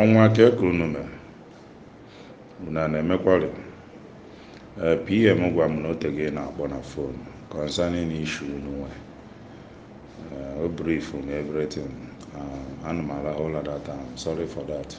ọnwa ka ekuru n'ume bụ na na-emekwari e, pm gwa m na otege na-akpọ na fon concerning issue unu e, o brief on everything e, ana m arahụ ụla that I'm sorry for that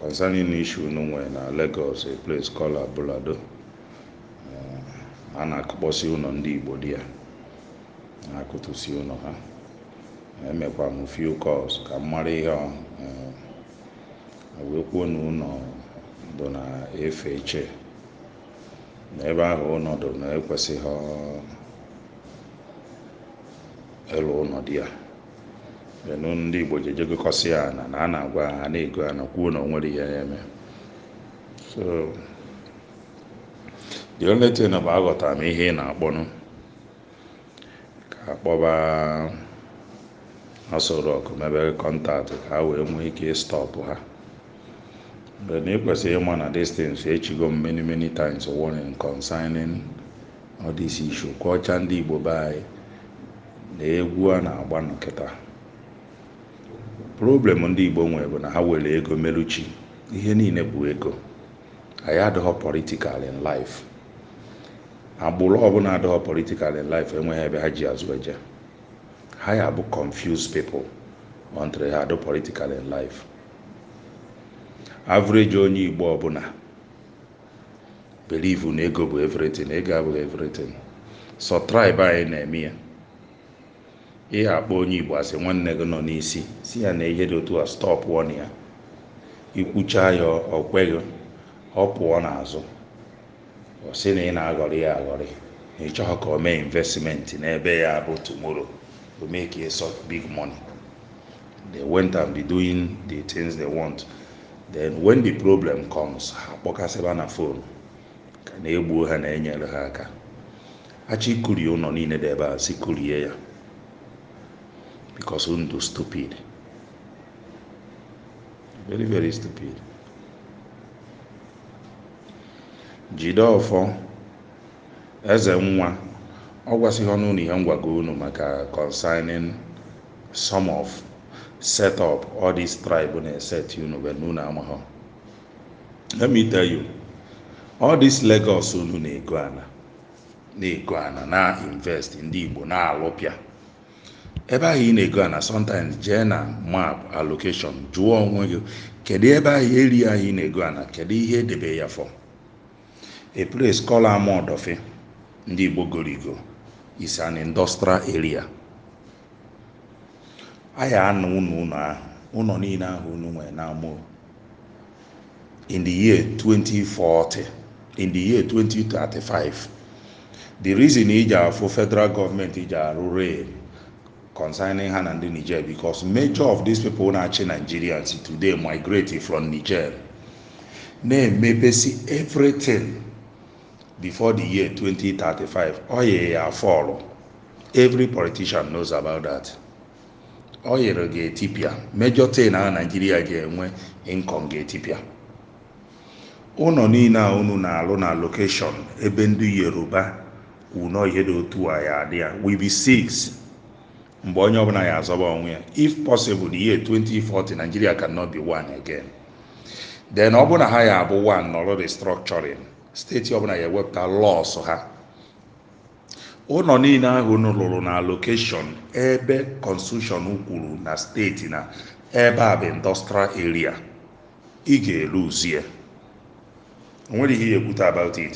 concerning issue unu na Lagos a place called Abulado a na akpọsi ụlọ ndị Igbo di ya na-akụtụsi ụlọ ha emekwa m few calls ka m mara ihe eh, wee kwuo na ụnọ bụ na efe eche na ebe ahụ ụnọ dị na ekwesịghị ịlụ ụlọ dị ya enu ndị igbo ji ejegokọsị ya na na a na-agwa ha na-ego ya na kwuo na o nwere ihe ya eme so the only thing bụ aghọtara m ihe ị na-akpọnụ ka akpọba asọ rọk mebere kọntaktị ka ha wee nwee ike ịstọpụ ha mgbe na ịkwesịrị ịma na distance echigo m many many times warning concerning all this issue kwọcha ndị igbo be anyị na egwu a na-agba nkịta problem ndị igbo nwere bụ na ha were ego meluchi ihe niile bụ ego anyị adịghọ political in life agbụrụ ọbụla adịghọ politikal in life enweghị ebe ha ji azụ eje ha ya bụ confused people until ha do ah, political in life average onye igbo ọbụla believe na ego bụ everything ego abụghị everything so anyị na-eme ya ihe akpọ onye igbo asị nwanne gị nọ n'isi si ya na ihe dị otu a stop wọn ya ikwucha ya okweghị ọ pụọ n'azụ ọ sị na ị na-aghọrị ya aghọrị na ị ka o mee investment n'ebe ya bụ tomorrow to make a such big money. They went and be doing the things they want. Then when the problem comes, ha kpọkasịba na phone ka na-egbuo ha na-enyere ha aka achị kurie ụlọ niile dị ebe a si kurie ya because ndụ stupid very very stupid jide ọfọ eze nwa ọ gwasịghị ọnụ na ihe ngwago unu maka consigning some of set up all this tribe na-eset unu bụ na unu amahọ let me tell you all this Lagos unu na-ego ana na-ego ana na-invest ndị Igbo na-alụpịa ebe ahụ ị na-ego ana sometimes jee na map allocation jụọ onwe gị kedu ebe ahụ eri ahụ ị na-ego ana kedu ihe edebe ya fọ a place called Amodofi ndị Igbo goro igo is an industrial area I ya anụ unu ụnọ ahụ ụnọ niile ahụ unu nwere na-amụ. in the year 2040 in the year 2035 the reason iji afụ federal gọọmenti iji arụ rail concerning ha na ndị niger because major of these people na-achị nigerians today migrate from niger na-emepesi everything before the year 2035 oil ya fọlụ every politician knows about that ọ yere ga major thing na nigeria naijiria ga-enwe income ga etipia ụnọ niile a unu na-alụ na location ebe ndị yoruba wunọ ihe dị otu a ya adị ya we be six mgbe onye ọbụla ya azọba onwe ya if possible the year 2040 nigeria cannot be one again then ọ na ha ya abụ one nọrọ restructuring steeti ọbụla ga-ewepụta lọsụ ha ụlọ niile ahụ lụrụ na lokeshọn ebe kọnstitushọn kwuru na steeti na ebe a bụ indọstral eria ị ga-eluzie onwere ihe ya ekwute about it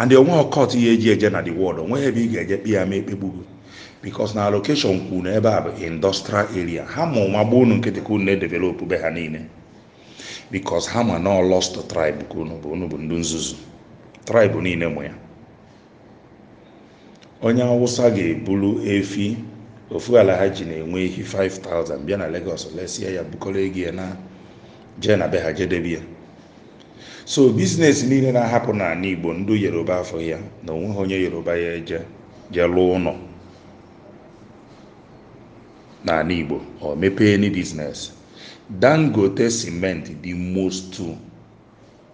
and onwe ọkọt ihe eji eje na the world onwe ebe ị ga-eje kpe ya ma ekpegbugo bikos na alokeshọn kwuru na ebe a bụ indọstral eria ha ma ụma gbuo unu nkịtị ka unu na-edevelopụ be ha niile bikos ha ma na lost tribe ka unu bụ unu bụ ndị nzuzu tribe niile mụ ya onye awụsa ga-eburu efi ofu ala ha ji na-enwe ehi 5000 bịa na Lagos lesie ya bukọrọ ego na jee na be ha ya so bizinesi niile na-ahapụ n'ala Igbo ndụ Yoruba afọ ya na onweghị onye Yoruba ya je jee lụọ ụlọ n'ala Igbo o mepee ni bizinesi Dangote simenti dị most 2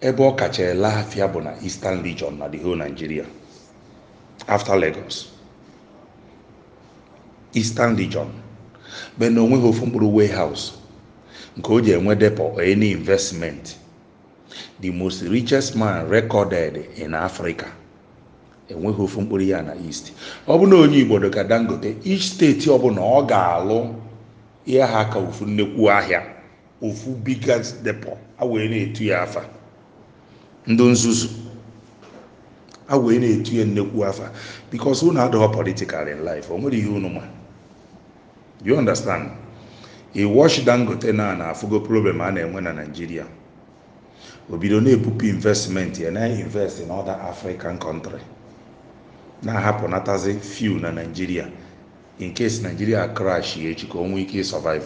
ebe ọ kacha ele afia bụ na Eastern Region na the whole Nigeria after Lagos Eastern Region be na onweghị ofu mkpụrụ warehouse nke o ji enwe depo any investment the most richest man recorded in Africa enweghị ofu mkpụrụ ya na east ọ bụ na onye Igbo ka Dangote each steeti ọbụla ọ ga-alụ ihe ha ka ofu nnekwu ahịa ofu biggest depo a na-etu ya afa ndị nzuzu a wee na-etu ya nnekwu afa bikos unu adịghọ politikal in life o nwere ihe unu ma you understand i wash dangote na na afụgo problem a na-enwe na naijiria o bido na-ebupụ investment ya na-invest in other african country na-ahapụnatazi few na naijiria in case naijiria crash ya echi ka o ike survive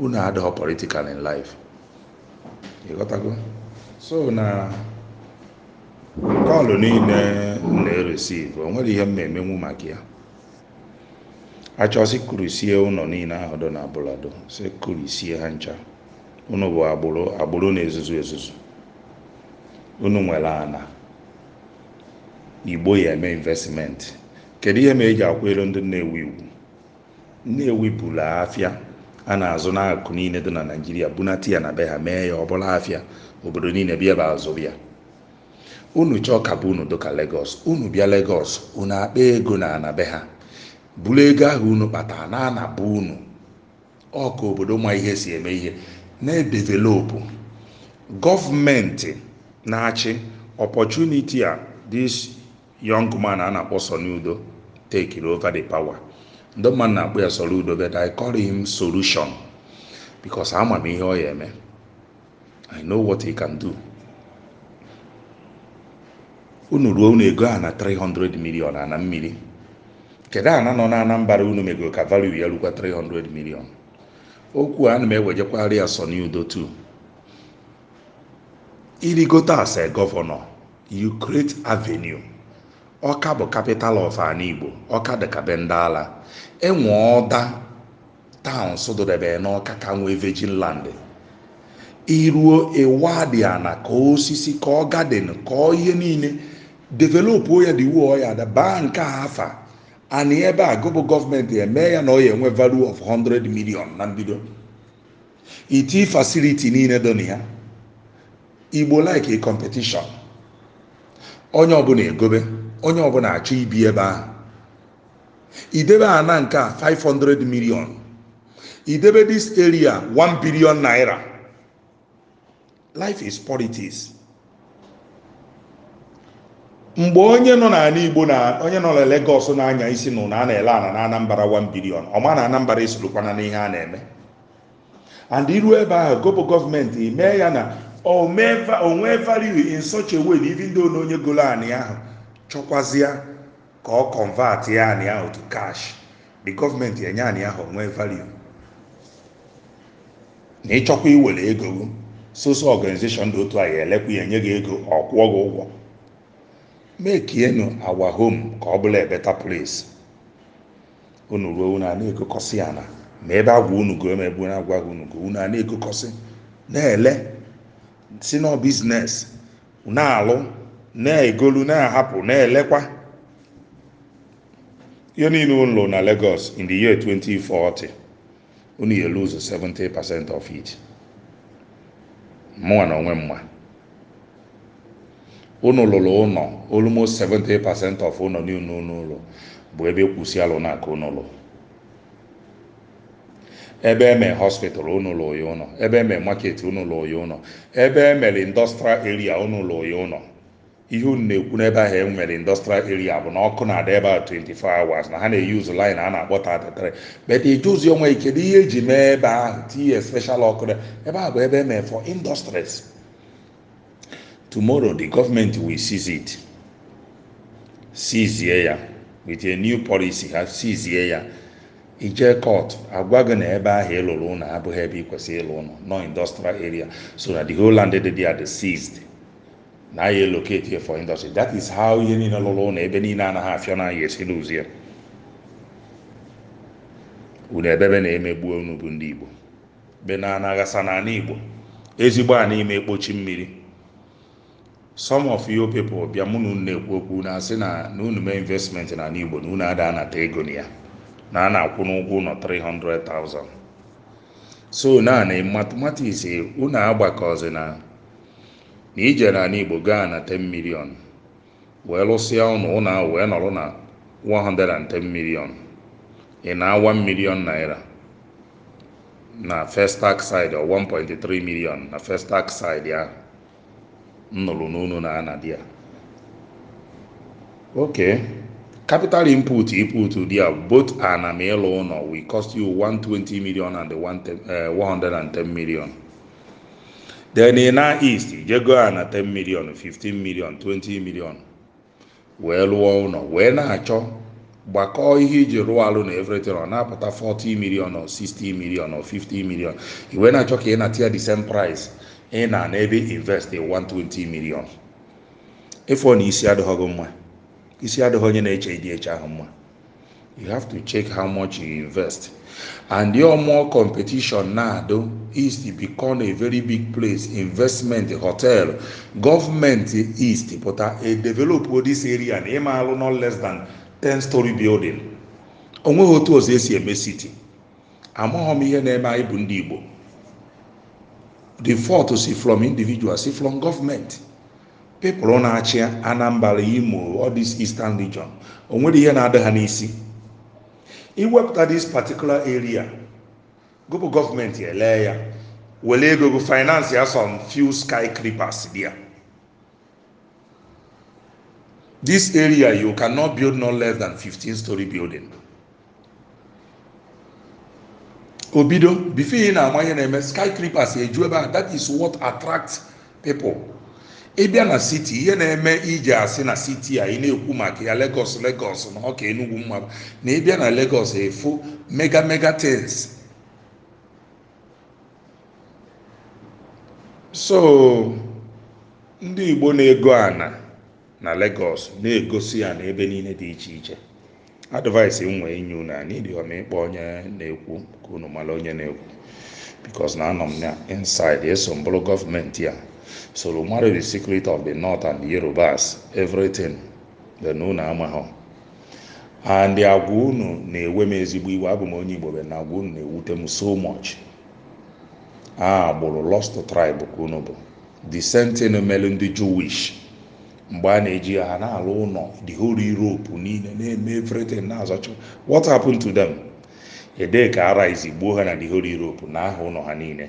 unu adịghị politikal in life ịghọtago so na kọlụ niile na-eresivu o ihe m na-emenwu maka ya achọsị kurusie ụlọ niile ahụ dọ na abụladọ si ha ncha unu bụ agbụrụ agbụrụ na-ezuzu ezuzu unu nwere ana igbo ya eme investimenti, kedu ihe ma eji akwụ ndị nnewi iwu nnewi bụla afịa a na-azụ n'akụ niile dị na naijiria bunata ya na be ha mee ya ọbụla afịa obodo niile bịa ebe azụ bịa unu chọọ ka bụ unu dịka legos unu bịa legos unu akpa ego na ana be ha buru ego ahụ unu kpatara na anabụ unu ọka obodo ma ihe si eme ihe na edevelopu gọọmenti na-achị opọchuniti a this young man a na-akpọ sonudo Udo take over the power ndị mmadụ na-akpọ ya udo but I call him solution because ama m ihe ọ ya eme I know what he can do unu ruo unu ego a na 300 million ana mmiri kedu ana nọ na Anambra unu megoro ka value ya rukwa 300 million okwu a na m ewejekwari ya Soni Udo too irigote as a governor you create avenue ọka bụ kapital of ala igbo ọka dịka be ndị ala enwe ọda taụn sụdụdebere n'ọka ka nwee vejin land iruo iwadiana e ka osisi ka ọ gadin ka ọ ihe niile developụ ya dị wuo ya da baa nke afa ana ebe a gụbụ gọọmenti eme ya na ọ enwe value of 100 million na mbido iti fasiliti niile dọ na ya igbo like a competition onye ọbụla egobe onye ọbụla achọ ibi ebe ahụ idebe ana nke a 500 million idebe this area 1 billion naira life is politics mgbe onye nọ n'ala igbo na onye nọ na Lagos na-anya isi na a na-ele ana na anambara 1 billion ọma na Anambra esorokwana n'ihe a na-eme and iru ebe ahụ gobo gọọmenti emee ya na nwee value in such a way na even though na onye golo anị ahụ chọkwazịa ka ọ convert ya anị ahụ to cash the government enye anị ahụ nwee value na ịchọkwa iwere ego soso organization dị otu a ya elekwa ya enye gị ego ọ kwụọ gị ụgwọ mekienu our home ka ọ bụla a better place unu ruo unu a na-ekokọsị ya na ma ebe agwa unu goo ma ebe unu agwaghị unu unu a na-ekokọsị na-ele si nọ biznes na-alụ na-egolu na-ahapụ na-elekwa ihe niile ụlọ na Lagos in the year 2040 unu ya lose 70% of it mụnwa na onwe mma unu lụrụ ụlọ almost 70% of ụlọ niile n'ụlọ bụ ebe kwụsị alụ na aka ụlọ ebe eme hospital unu ya ụlọ ebe eme market unu ya ụlọ ebe emere industrial area unu ya ihe unu na-ekwu n'ebe ahụ e nwere industrial area bụ na ọkụ na-ada ebe ahụ 24 hours na ha na-eyuzu line a na-akpọ 33 but ejuzi ọnwa ike kedu ihe eji mee ebe ahụ tinye special ọkụ ebe ahụ bụ ebe emere for industries tomorrow the government will seize it seizie ya with a new policy ha seizie ya ije court agwa gị na ebe ahụ lụrụ ụlọ abụghị ebe ị kwesịrị ịlụ ụlọ no industrial area so that the whole land dị there dị seized na anyị locate here for industry that is how ihe niile lụrụ na ebe niile anaghị afịọ na anyị esi n'ụzie unu ebebe na-emegbu onugbu ndị igbo be na anaghasa na ana igbo ezigbo a ime ekpochi mmiri some of you people bịa mụ na unu na-ekwu okwu na asị na na unu investment na ala igbo na unu ada anata ego na ya na a na-akwụ n'ụgwọ ụlọ 300,000 so na na mathematics unu agbakọzi na na ijere ala igbo gaa na 10 million wee lụsịa ụnụ ụnụ ahụ wee nọrọ na 110 million ị na-awa million naira na first tax side or 1.3 million na first tax side ya nnụrụ n'unu na anadi ya okay capital input input there both an amelo we cost you 120 million and the 110 eh, million then ị na east ijego a na 10 million 15 million 20 million wee lụọ ụlọ wee na-achọ gbakọọ ihe iji rụọ alụ na ọ na-apụta 40 million or 60 million or 50 million i wee na-achọ ka ị na atịa the same price ị na na ebe invest 120 million ịfọ na isi adịghị mma isi adịghị onye na-eche ịdị eche ahụ mma you have to check how much you invest and your more competition now though is to become a very big place investment hotel government east put a develop this area and ịma alụ no less than 10 story building onweghị otu ọzọ esi eme city amaghọ m ihe na-eme anyị bụ ndị igbo the fault si from individual si from government people na-achị anambra imo all this eastern region o nwere ihe na-adị ha n'isi iwepụta this particular area gụpụ gọọmenti ele ya were ego gụ finance ya some few creepers there this area you cannot build no less than 15 story building obido before ị na-ama ihe na-eme skyscrapers eju ebe a is what attracts people ịbịa na siti ihe na-eme iji asị na siti a ị na-ekwu maka ya Lagos Lagos na ọka enugwu mmadụ na ịbịa na Lagos efu mega mega tins so ndị Igbo na-ego ana na Lagos na-egosi ya na ebe niile dị iche iche advice m nwee inye na anyị ịkpọ onye na-ekwu ka unu mara onye na-ekwu because na anọ m na inside eso mbụrụ gọọmenti a soro marry the secret of the north and the yorubas everything dị na ama ha and agwa unu na-ewe m ezigbo iwe abụ m onye igbo be na agwa unu na-ewute m so much a gbụrụ lost tribe ka unu bụ the sentinel mere ndị jewish mgbe a na-eji ha na-alụ ụlọ the whole europe niile na-eme everything na-azọcha what happened to them ede ka ara ha na the whole europe na aha ụlọ ha niile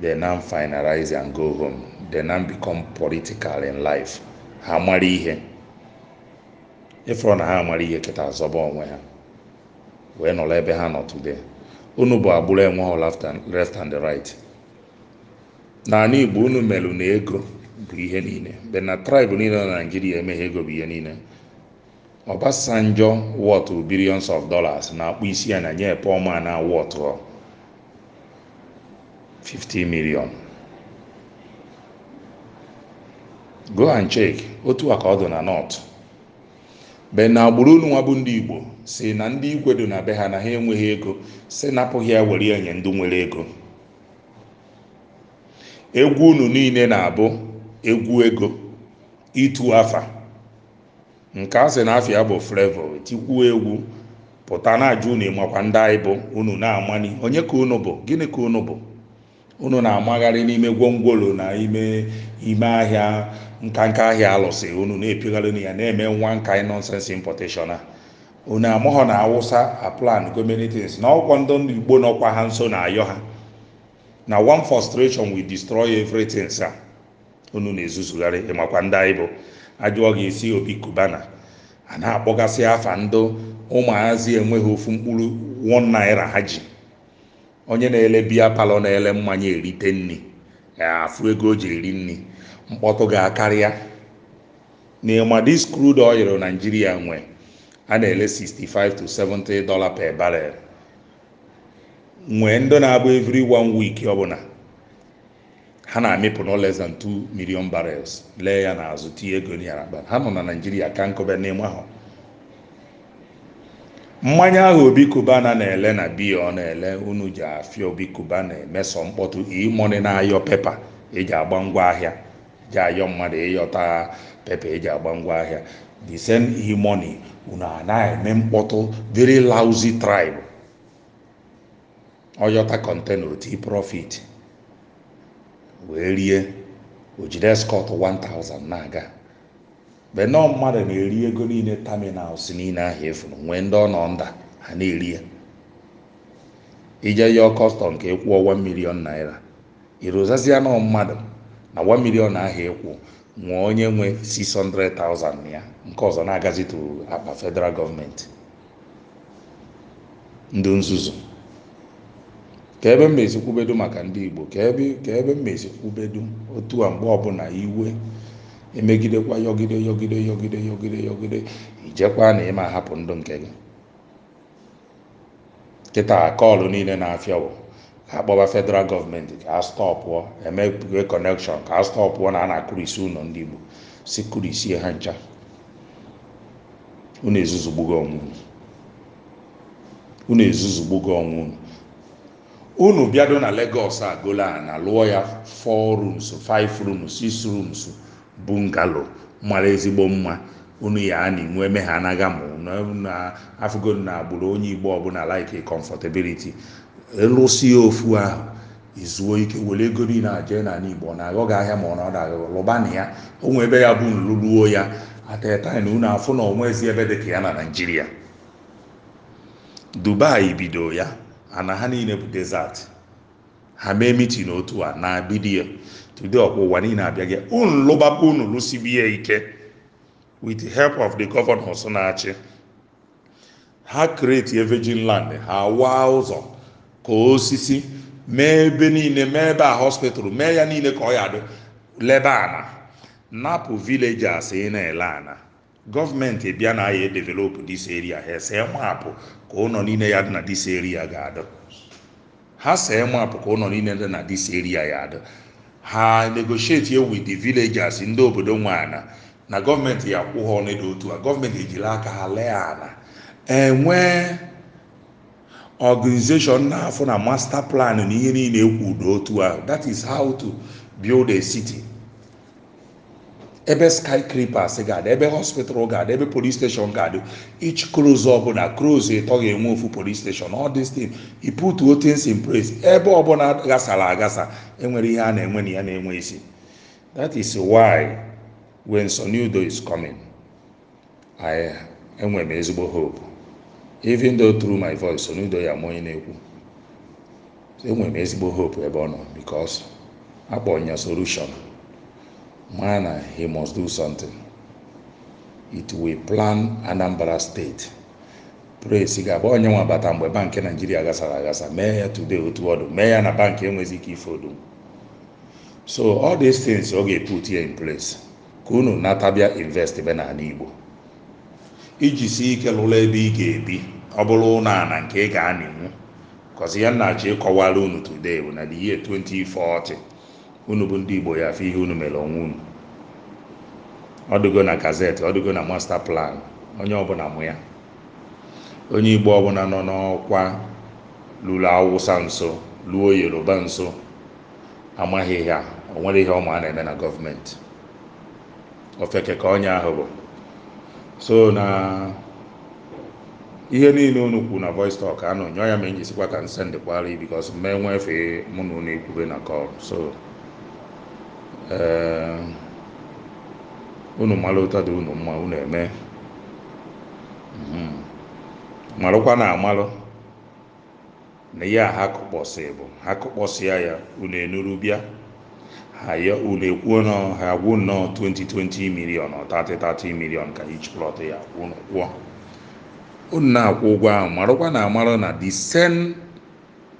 they now finalize and go home they now become political in life ha amara ihe ịfụrụ na ha mara ihe keta azọba onwe ha wee nọrọ ebe ha nọ today unu bụ agbụrụ enweghị left and right n'ala igbo unu merụ na ego bụ ihe niile be na tribe niile na naijiria emeghe ego bụ ihe niile Obasanjo wọtụ billions of dollars na-akpụ isi ya na nye Paul Man na wọtụ 50 million go and check otu a ka ọ dị na north be na agbụrụ unu nwa ndị igbo si na ndị igwe dị na be ha na ha enweghị ego si napụghị ya were ya nye ndị nwere ego egwu unu niile na-abụ egwu ego itu afa nke a sị na afia bụ frevo tikwuo egwu pụta na ajụ unu ịmakwa ndị anyị bụ unu na-amani onye ka unu bụ gịnị ka unu bụ unu na-amagharị n'ime gwongworo na ime ime ahịa nkanka ahịa alụsị unu na-epigharị ya na-eme nwa nka nonsense importation a unu amaghọ na awụsa aplan gomenitins na ọgwọ ndị igbo nọkwa ha nso na ayọ ha na one frustration wi destroy everything sa unu na-ezuzugharị ịmakwa ndị anyị bụ ajụọ ga-esi obi kubana a na-akpọgasị afa ndụ ụmụazị enweghị ofu mkpụrụ one naira ha ji onye na-ele biya palọ na-ele mmanya erite nri afụ ego o ji eri nri mkpọtụ ga-akarịa n'ịma dis crude oil naijiria nwe a na-ele 65 to 70 dollar per barrel nwee ndị na-abụ every one week ọbụla ha na-amịpụ no less than 2 million barrels lee ya n'azụ tinye ego ha nọ na naijiria ka nkọbe mmanya ahụ obi kubana na-ele na biya ọ na-ele unu ji afịa obi kubana emeso mkpọtụ imoni na-ayọ pepa eji agba ngwa ahịa ji ayọ mmadụ ịyọta pepa eji agba ngwa ahịa the same imoni e unu anaghị eme mkpọtụ very lousy tribe ọyọta kọntena oti profit wee rie ojide skọt 1000 na-aga mgbe nọọ mmadụ na-eri ego niile taminal si niile ahụ efu nwee ndị ọ nọ nda ha na-eri ya ije yọọ kọstọm nke ịkwụ ọwa milion naira irụzazie nọ mmadụ na 1 milion ahịa ịkwụ nwee onye nwe 600,000 ya nke ọzọ na-agazituru akpa federal gọọmenti ndị nzuzu ka ebe mmezi kwubedo maka ndị igbo ka ebe mmezi kwubedo otu a mgbe ọbụla iwe emegidekwa yọgide yọgide yọgide yọgide yọgide ijekwa na ịma ahapụ ndụ nke gị kịta kọọlụ niile na-afịa bụ ka akpọba federal gọọmenti ka a stọpụọ emegwe kọnekshọn ka a stọpụọ na a na-akụrisi ụlọ ndị igbo si kụrụ isi ha ncha unu ezuzugbugo ọnwụ unu unu ezuzugbugo ọnwụ unu unu bịado na Lagos agụla na lụọ ya 4 rooms 5 rooms 6 rooms bungalo mara ezigbo mma unu ya a na-enwe eme ha anaghị amụ na afụgo na agbụrụ onye igbo ọbụla like comfortability ya ofu ahụ izuo ike were ego niile na jee n'ala igbo ọ na-aghọ ahịa ma ọ na agagọ lụbana ya onwe ebe ya bụ nluluo ya atataina unu afụ na ezi ebe dị ka ya na naijiria dubai bido ya ana ha niile bụ ha mee mitin otu a na bidiyo today ọkwa ụwa niile abịa gị unu lụba unu lụsibi ya ike with the help of the governors na-achị ha kreti virgin land ha waa ụzọ ka osisi mee ebe niile mee ebe a hospital mee ya niile ka ọ ya dị lebe ana napụ villages ị na-ele ana gọọmenti bịa na ya edevelopụ dis eria ha see mapụ ka ụlọ niile ya dị na dis eria ga-adị ha see mapụ ka ụlọ niile dị na dis eria ya adị ha negotiate with the villagers ndị obodo nwe ana na gọọmenti ya kwụ ha otu a gọọmenti ejiri aka ha lee ana enwee organization na-afụ na master plan na ihe niile ekwu n'otu ahụ that is how to build a city ebe skyscrapers gaadị ebe hospital gaadị ebe police station gaadị each cruise ọbụla cruise ịtọ ga-enwe ofu police station all this thing you put all things in place ebe ọbụla gasara agasa enwere ihe a na-enwe na ya na-enwe isi that is why when Sonido is coming I enwe ezigbo hope even though through my voice Sonido ya m onye na-ekwu enwe m ezigbo hope ebe ọ nọ because akpọ solution man na he must do something it will plan anambra steeti praise ga-abụ onye nwe abata mgbe bankị naijiria gasara agasa mee ya today otu ọdụ mee ya na bankị enweghị ike ife odo so all these things ọ ga put ya in place ka unu natabịa invest be ala igbo iji si ike lụrụ ebe ị ga-ebi ọ bụrụ ụlọ ala nke ị ga-anịnwu kọzi ya nna ji ịkọwara unu today bụ na the year 2040 unu bụ ndị igbo ya afọ ihe unu mere ọnwa unu ọ na gazeti ọ na masta plan onye ọbụla mụ ya onye igbo ọbụla nọ n'ọkwa lụrụ awụsa nso lụọ yoruba nso amaghị ya o nwere ihe ọma a na-eme na gọọmenti ofeke ka onye ahụ bụ so na ihe niile unu kwu na voice talk anụ nyọọ ya ma enyi sikwa ka nsendịkwara bikos mee nwefee mụ na unu ekwube na kọl so Ehm, unu mara ụtọ dị unu mma unu eme mhm. marụkwa na amalụ na ya ha kụkpọsị bụ ha ya unu enuru ha ya unu ekwuo na ha nnọọ 2020 milion 30 milion ka each plọt ya kwụọ unu na-akwụ ụgwọ ahụ marụkwa na amalụ na the same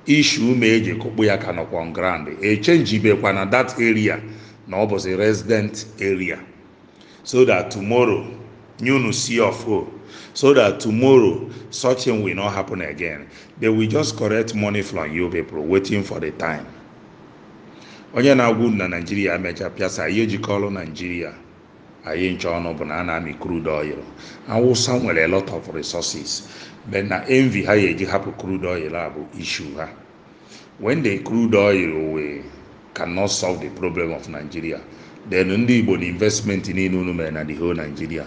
issue eji e kụkpụ ya ka nọkwa on echenjibekwa na that area na ọ bụzi resident area so that tomorrow nyunu see of o so that tomorrow such thing will not happen again they will just correct money from you people waiting for the time onye na-agwụ na naijiria mecha pịasa ihe jikọrọ naijiria anyị nche ọnụ bụ na a na-amị crude oil awụsa nwere lot of resources but na envy ha ya eji hapụ crude oil a bụ ha when the crude oil wee cannot solve the problem of nigeria then ndị igbo na investmenti niile unu mere na the whole nigeria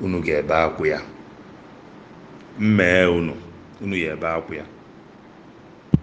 unu ga-ebe akwụ ya mmee unu unu ga ebe akwụ ya